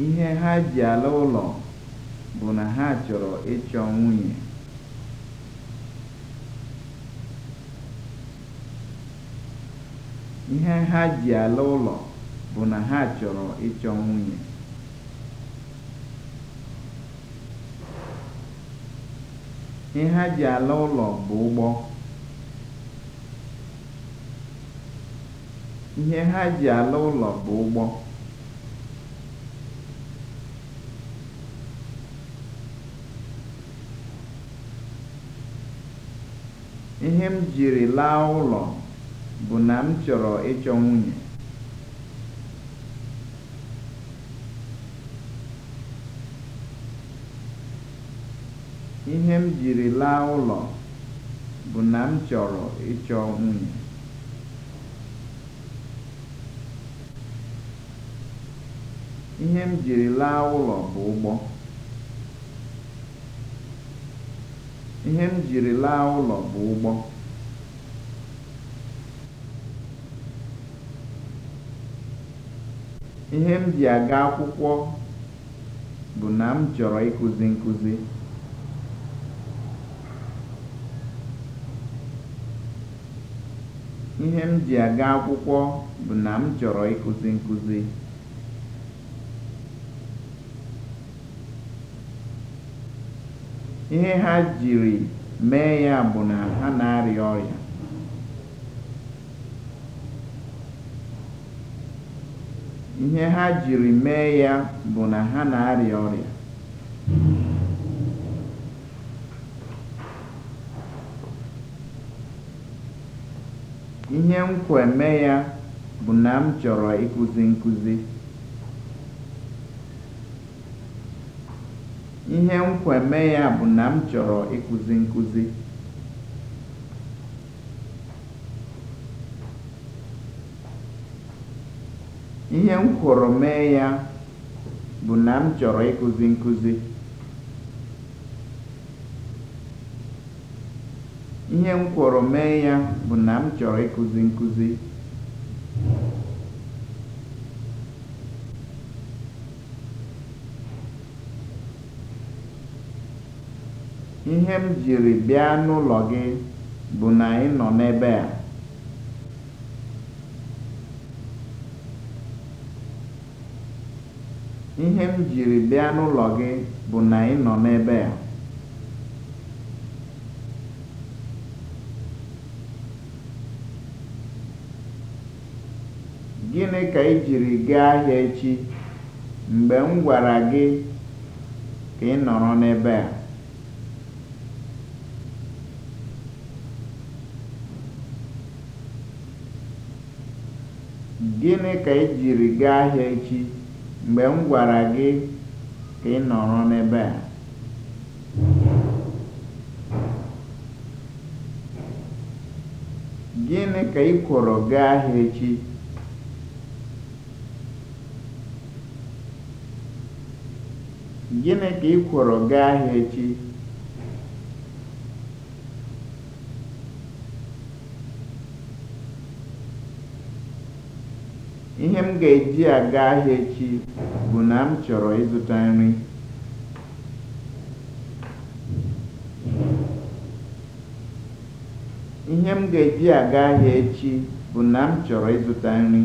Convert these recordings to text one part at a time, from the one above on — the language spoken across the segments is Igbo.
Ihe ha ji ala ụlọ bụ na ha chọrọ ịchọ nwunye. Ihe ha ji ala ụlọ bụ na ha chọrọ ịchọ nwunye. Ihe ha ji ala ụlọ bụ ụgbọ. Ihe ha ji ala ụlọ bụ ụgbọ. Ihe m jiri laa ụlọ bụ na m chọrọ ịchọ nwunye. Ihe m jiri laa ụlọ bụ na m chọrọ ịchọ nwunye. Ihe m jiri laa ụlọ bụ ụgbọ. Ihe m jiri laa ụlọ bụ ụgbọ. Ihe m ji aga akwụkwọ bụ na m chọrọ ịkụzi nkụzi. Ihe m ji aga akwụkwọ bụ na m chọrọ ịkụzi nkụzi. Ihe ha jiri mee ya bụ na ha na-arịa ọrịa. Ihe ha mee ya bụ na m mee ya bụ na m chọrọ ịkụzi nkụzi. Ihe nkweme ya bụ na m chọrọ ịkụzi nkụzi. mee ya bụ na m chọrọ ịkụzi nkụzi. mee ya bụ na m chọrọ ịkụzi nkụzi. Ihe m jiri bịa n'ụlọ gị bụ na ị nọ n'ebe a. Gịnị ka i jiri gaa ahịa echi mgbe m gwara gị ka ị nọrọ n'ebe a? Gịnị ka i jiri gaa ahịa echi mgbe m gwara gị ka ị nọrọ n'ebe a? Gịnị ka ị kụrụ gaa ahịa gaa ahịa echi? ga-eji aga ahịa echi bụ na m chọrọ ịzụta nri. Ihe m ga-eji aga ahịa echi bụ na m chọrọ ịzụta nri.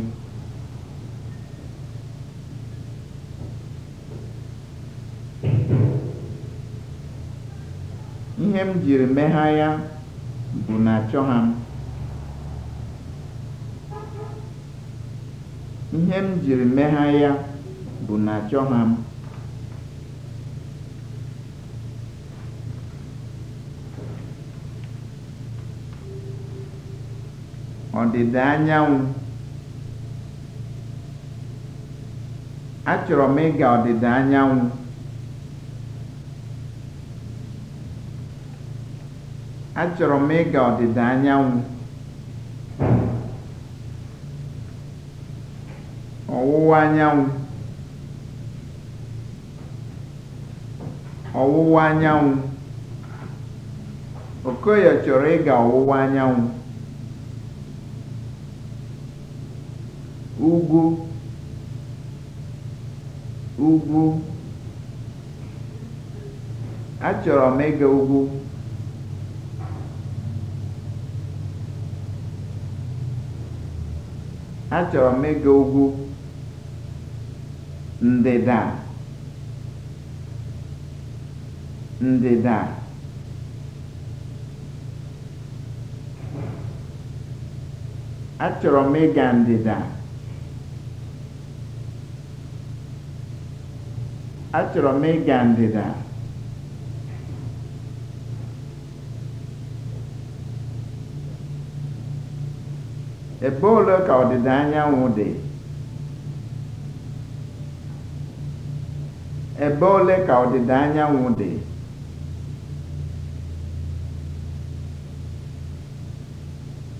Ihe m jiri megha ya bụ na achọghị m. Ihe m jiri megha ya bụ na achọ m. Achọrọ m ịga anyanwụ, Achọrọ m ịga ọdịda anyanwụ. ọwụwa anyanwụ, ọ̀wụwa anyanwụ, Okoye chọrọ ịga ọwụwa anyanwụ. ugwu ugwu Achọrọ m ịga ugwu. Achọrọ m ịga ugwu. ndịda ndịda achọrọ m ịga ndịda achọrọ m ịga ndịda ebe ole ka ọdịda anyanwụ dị Ebe ole ka ọdịda anyanwụ dị?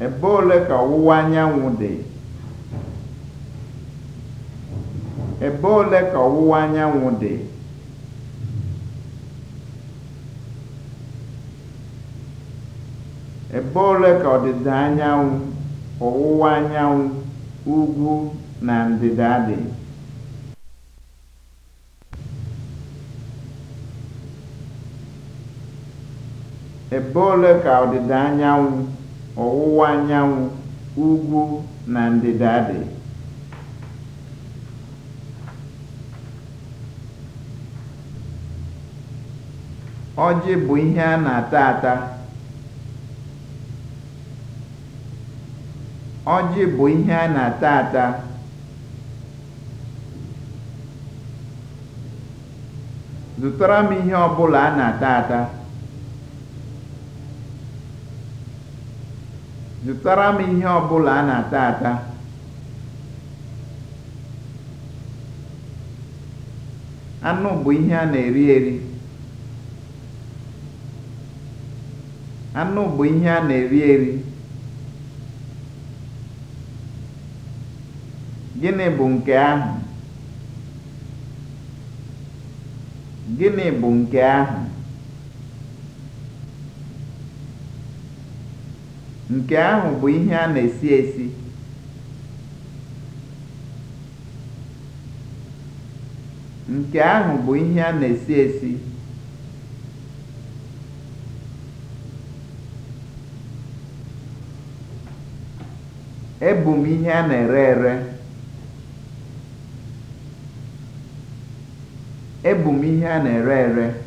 Ebe ole ka ọwụwa anyanwụ dị? Ebe ole ka ọwụwa anyanwụ dị? Ebe ole ka ọdịda anyanwụ, ọwụwa anyanwụ, ugwu na ndịda dị? Ebe ole ka ọwụwa anyanwụ, ugwu na ndịda dị? Ọjị bụ ihe a na-ata ata. Ọjị bụ ihe a na-ata ata. Zụtara m ihe ọ bụla a na-ata ata. Zụtara m ihe ọ bụla a na-ata ata. Anụ bụ ihe a na-eri eri. Gịnị bụ nke ahụ? Nke ahụ bụ ihe a na-esi esi. Nke bụ Ebu m ihe a na-ere ere.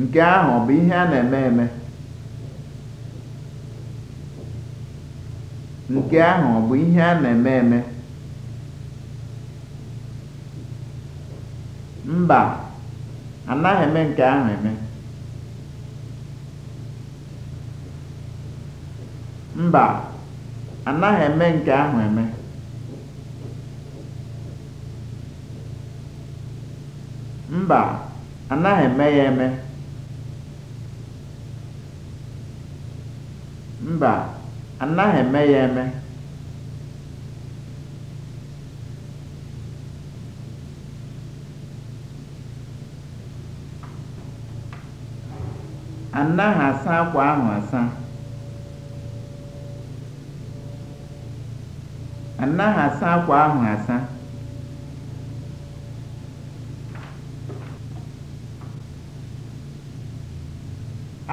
Nke ahụ ọ bụ ihe a na-eme eme? Nke ahụ bụ ihe a na-eme eme? Mba, anaghị eme nke ahụ Mba, anaghị eme ya eme. Mba, anaghị eme ya eme. Anaghị asa akwa ahụ asa. Anaghị asa akwa ahụ asa.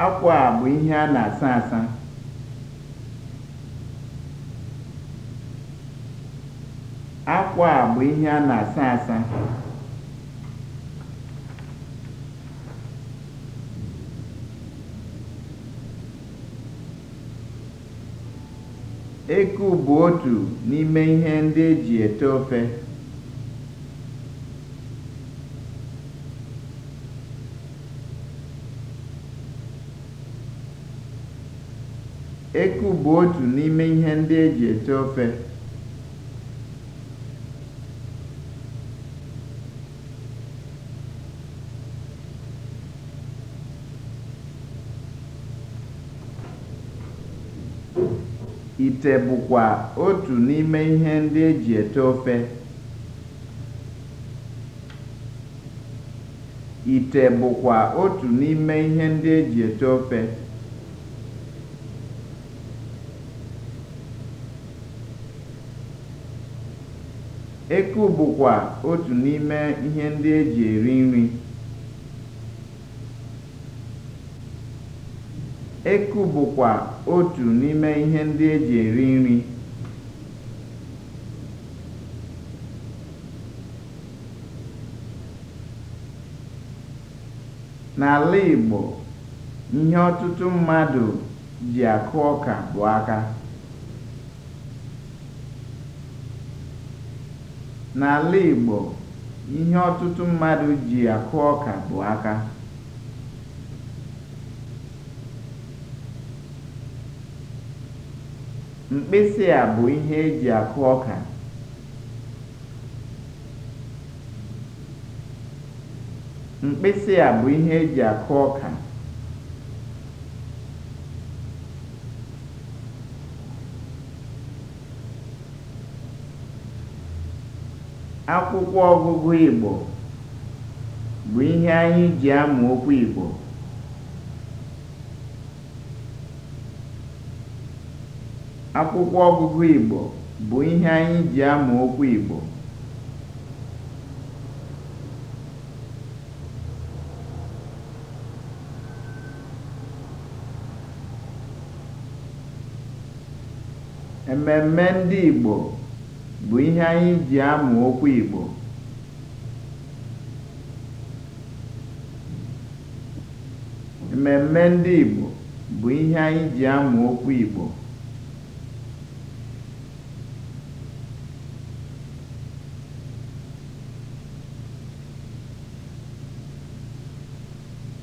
Akwa a bụ ihe a na-asa asa. akwa a bụ ihe a na-asa asa eku bụ otu n'ime ihe ndị eji ete eku bụ otu n'ime ihe ndị eji ete ofe Ite bụkwa otu n'ime ihe ndị e ete ofe. Eku bụkwa otu n'ime ihe ndị eji eri nri. Eku bụkwa otu n'ime ihe ndị e ji eri nri. N'ala Igbo, ihe ọtụtụ mmadụ ji akụ ọka bụ N'ala Igbo, ihe ọtụtụ mmadụ ji akụ ọka bụ aka. Mkpịsị a bụ ihe e ji akụ ọka. Mkpịsị e Akwụkwọ ọgụgụ Igbo bụ ihe anyị ji amụ okwu Igbo. Akwụkwọ ọgụgụ Igbo bụ ihe anyị ji amụ okwu Igbo. Ememme ndị Igbo bụ ihe anyị ji amụ okwu Igbo. Ememme ndị Igbo bụ ihe anyị ji amụ okwu Igbo.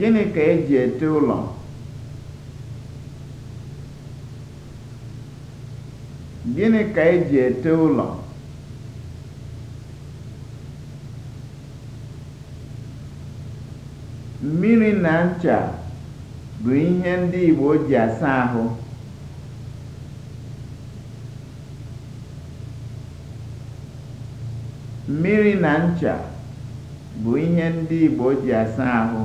Gịnị ka eji ete ụlọ? E ete ụlọ? Mmiri na ncha bụ ihe ndị Igbo ji asa ahụ. Mmiri na ncha bụ ihe ndị Igbo ji asa ahụ.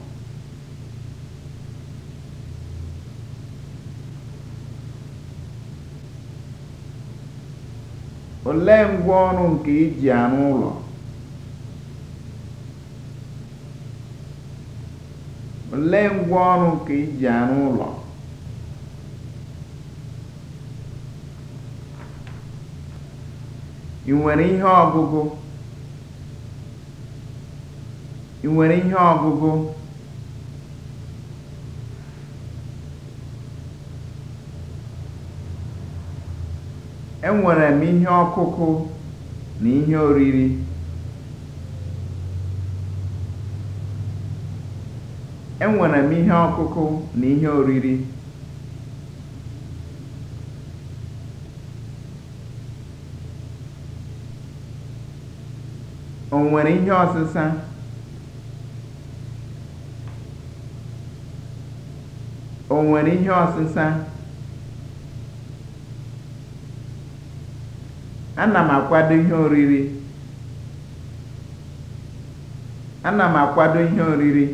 olee ngwaọrụ nke iji e arụ ụlọ nke iji e arụ ụlọ ị ị nwere ihe ọgụgụ Enwere m ihe ọkụkụ na ihe oriri. Enwere m ihe ọkụkụ na ihe oriri. O nwere ihe ọsịsa? O nwere ihe ọsịsa? ana m akwado ihe oriri ihe oriri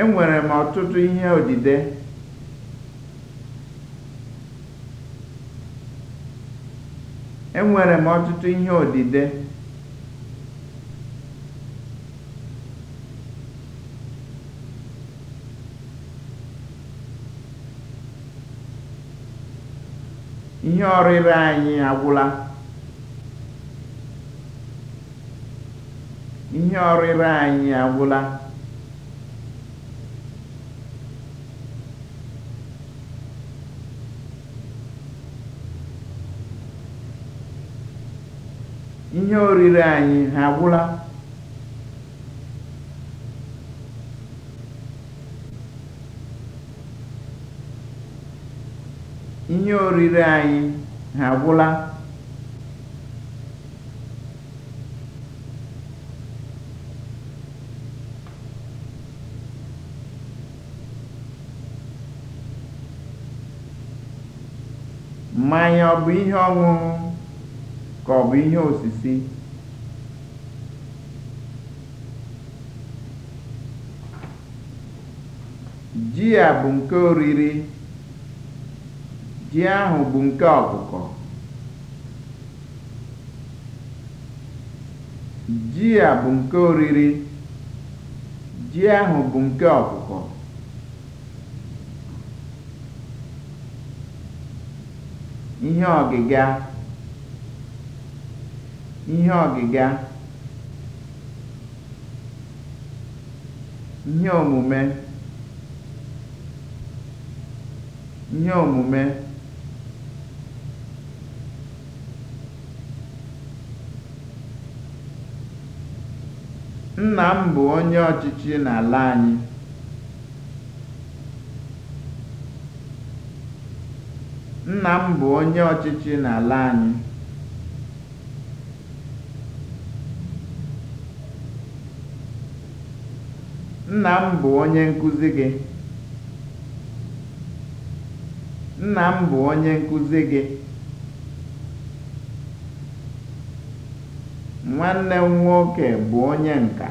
enwere m ọtụtụ enwere m ọtụtụ ihe odide ihe ọrịre anyị agwụla ihe ọrịre anyị agwụla ihe oriri anyị ha agwụla Ihe oriri anyị ha agwụla? Mmanya ọ bụ ihe ọṅụṅụ ka ọ bụ ihe osisi? Ji a bụ nke oriri. Ji ahụ bụ nke ọkụkọ. Ji a bụ nke oriri. Ji ahụ bụ nke ọkụkọ. Ihe ọgịga. Ihe ọgịga. Ihe omume. Ihe omume. Nna m bụ onye ọchịchị n'ala anyị. Nna m bụ onye ọchịchị n'ala anyị. Nna m bụ onye nkuzi gị. Nna m bụ onye nkuzi gị. Nwanne m nwoke bụ onye nka.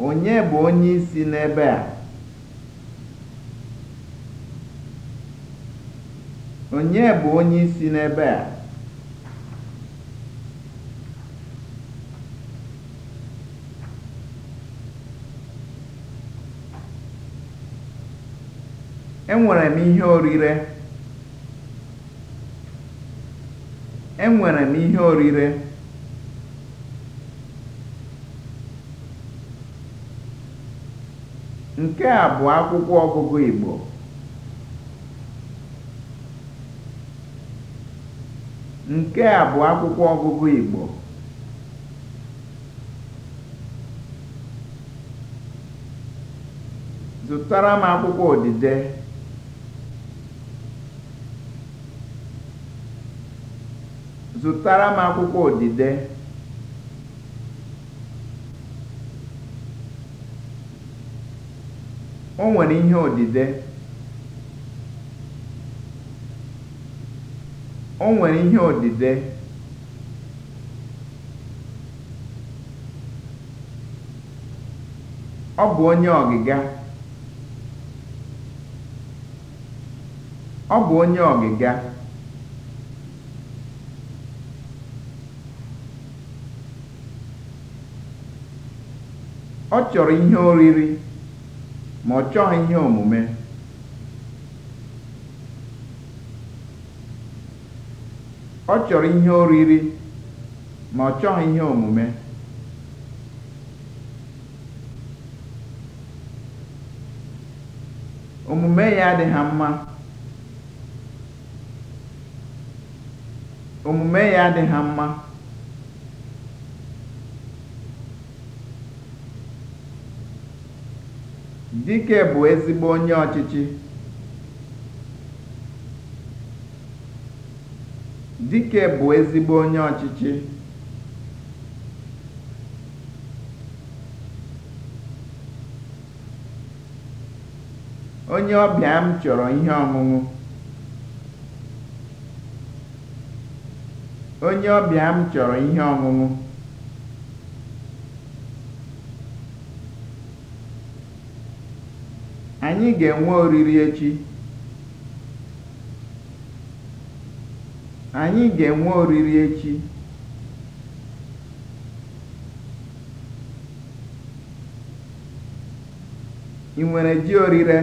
Onye bụ onye isi n'ebe a? Onye bụ onye isi n'ebe a? Enwere m ihe orire. Enwere m ihe orire. Nke a bụ akwụkwọ ọgụgụ Igbo. Nke a bụ akwụkwọ ọgụgụ Igbo. Zụtara m akwụkwọ odide. Zụtara m akwụkwọ odide. O nwere ihe odide. O nwere ihe odide. Ọ bụ onye ọgịga. Ọ Ọ chọrọ ihe oriri ma ọ chọghị ihe omume. Ọ chọrọ ihe oriri ma ọ chọghị ihe omume. Omume ya adịha mma. Omume ya mma. Dike bụ ezigbo onye ọchịchị. Dike bụ ezigbo onye ọchịchị. Onye ọbịa m chọrọ ihe ọṅụṅụ. Onye ọbịa m chọrọ ihe ọṅụṅụ. Anyị ga-enwe oriri echi. Anyị ga-enwe oriri echi. Ị nwere ji orire?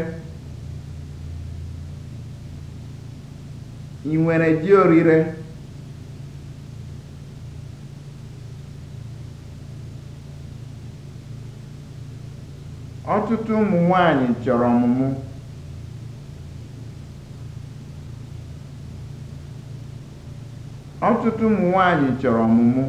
nwere ji orire? Ọtụtụ ụmụ nwaanyị chọrọ ọmụmụ. Ọtụtụ ụmụ nwaanyị chọrọ ọmụmụ.